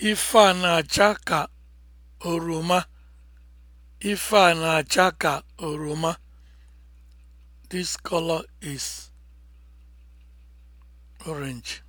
Ife a na-acha ka oroma. Ife a na-acha ka oroma. This color is orange.